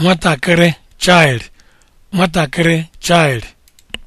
nwatakịrị child nwatakịrị child